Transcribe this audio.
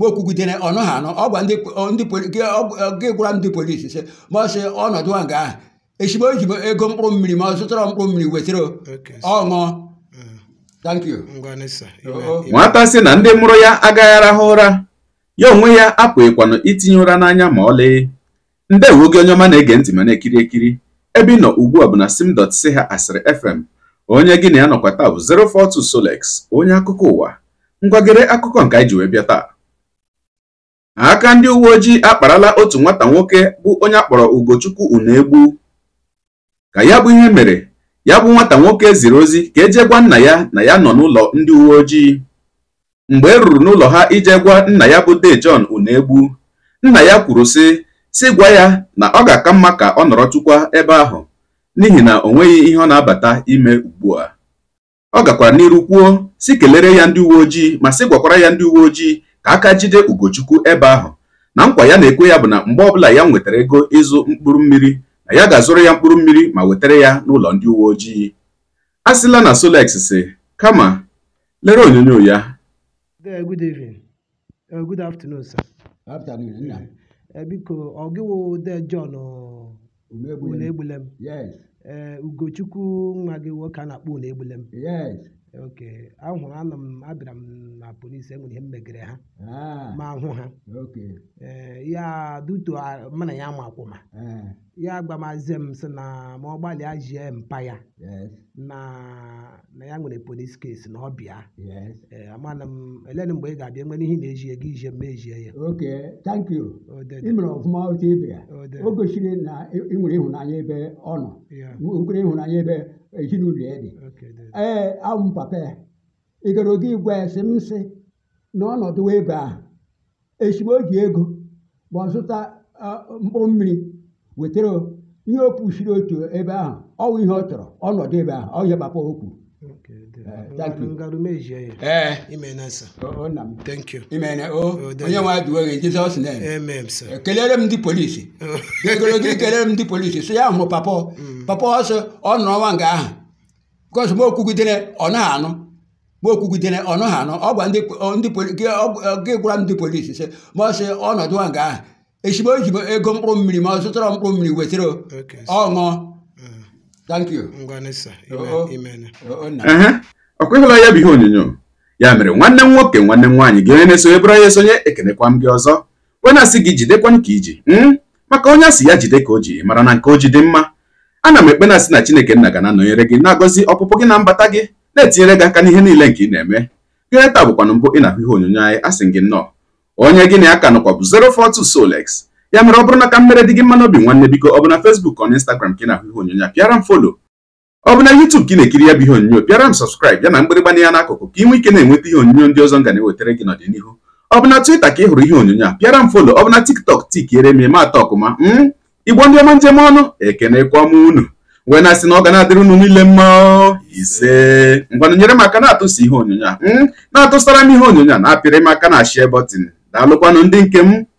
ma o kwugidere ọnụ ha anọ ọgwa gị gwara ndị polisi sị ma ọ sị ọnọdụ a nga ahụ echigbo o ji ego mkpụrụ mmiri ma ọ zụtara mkpụrụ mmiri wetara ọṅụ. Mm. nwata sị na ndị mụrụ ya agaghị arahụ ụra ya onwe ya apụghịkwanụ itinye ụra n'anya ma ọlị ndewo gị onye ọma na-ege ntị ma na-ekiri ekiri ebe ị nọ ugbu a bụ na simdot si ha asịrị fm onye gị na ya nọkwa taa bụ 042 Solex onye akụkọ ụwa ngwagịrị akụkọ nke anyị ji wee bịa taa aka ndị uwe ojii akparala otu nwata nwoke bụ onye akpọrọ Ugochukwu Unegbu ka ya bụ ihe mere ya bụ nwata nwoke ziri ozi ka eje gwa nna ya na ya nọ n'ụlọ ndị uwe ojii mgbe e ruru n'ụlọ ha ije gwa nna ya bụ john Unegbu nna ya kwuru sị si gwa ya na ọ ga-aka mma ka ọ nọrọtụkwa ebe ahụ n'ihi na o nweghị ihe ọ na-abata ime ugbu a ọ gakwara n'iru kwuo si kelere ya ndị uwe ojii ma sị gwakwara ya ndị uwe ojii ka aka jide Ugochukwu ebe ahụ na nkwa ya na-ekwe ya bụ na mgbe ọbụla ya nwetara ego ịzụ mkpụrụ mmiri na ya ga-azụrụ ya mkpụrụ mmiri ma wetara ya n'ụlọ ndị uwe ojii a sịla na Solex si kama lere onyonyo ya good evening uh, uh, biko ọ de John uh, gị nwoke a na m abịara na polisi enwere ihe mmegere ha ah. ma hụ ha eh, ya duto mụ na ya akwụma eh. ya gbamazie m si na ma ọ gbalịa jie mpa ya na ya nwere polisi kesi na ọ bịa eh, amana m mgbe ị ga-abịa nwere ihe na-ejie gị ije ma ejie ya oke thank you ị mere ọfụma otu o gosiri na ị nwere ịhụnanya ebe ọ nọ nwere ịhụnanya ebe ezinụlọ ya dị ee m papa ya igorogo igwe esi m sị na ọnọdụ ego a esi m o ji ego ma ọ zụta mkpụrụ mmiri wetara ihe o kwusiri otu ebe ahụ ọwụ ihe ọ chọrọ ọnọdụ ebe ahụ ọ okwu. ihe papa o kwuru ekelere m ndị polisi egologo kelere m ndị polisi sị ya hụ papa papa ọsọ ọ nọrọ nwa nga ahụ because m okwugidere ọ na anụ mgbe okwugidere ọnụ ha anọ ọ gwa gwara ndị polisi si ma ọ sị ọnọdụ a nga ahụ echigbo ego mkpụrụ mmiri ma ọ zụtara mkpụrụ mmiri wetara ọṅụ ọ mm. kweghịla ya bụ ihe onyonyo ya mere nwanne m nwoke nwanne m nwaanyị gị onye na-esonye bụrụ ya esonye ekenekwa m gị ọzọ wee na-asị gị jidekwa ka iji hmm? maka onye asị ya jide ka o ji mara na nke o ji dị mma ana m ekpena na-asị na Chineke nna ga na-anọnyere gị na-agọzi ọpụpụ gị na mbata gị na-etinyere gị aka n'ihe niile nke ị na-eme gịnị taa bụkwanụ mbụ ị na-ahụ ihe onyonyo anyị asị gị nnọọ onye gị na ya ka nọkwa bụ 042 Solex ya mere ọ bụrụ na mmere dị gị mma n'obi nwanne biko ọ bụ na Facebook ọ na Instagram ka ị na-ahụ ihe onyonyo a pịara m folo ọ bụ na YouTube ka ị na-ekiri ya bụ ihe onyonyo pịara m sọskraịb ya na mgbịrịgba ya n'akụkụ ka ị nwee ike na-enweta ihe onyonyo ndị ọzọ nga na-ewetara gị n'ọdịnihu ọ bụ na ka ị hụrụ ihe onyonyo a pịara m folo ọ bụ na TikTok tikiere m eme atọ ọkụma m hmm? igbo ndị ọma njem ọnụ ekene m unu wee na-asị na ọ ga na-adịrị ụnụ niile mma ise ngwanụ nyere m aka na atụsi ihe onyonyo a hmm? na-atụsara m ihe onyonyo a na-apịrị m aka na share na daalụkwanụ ndị nke m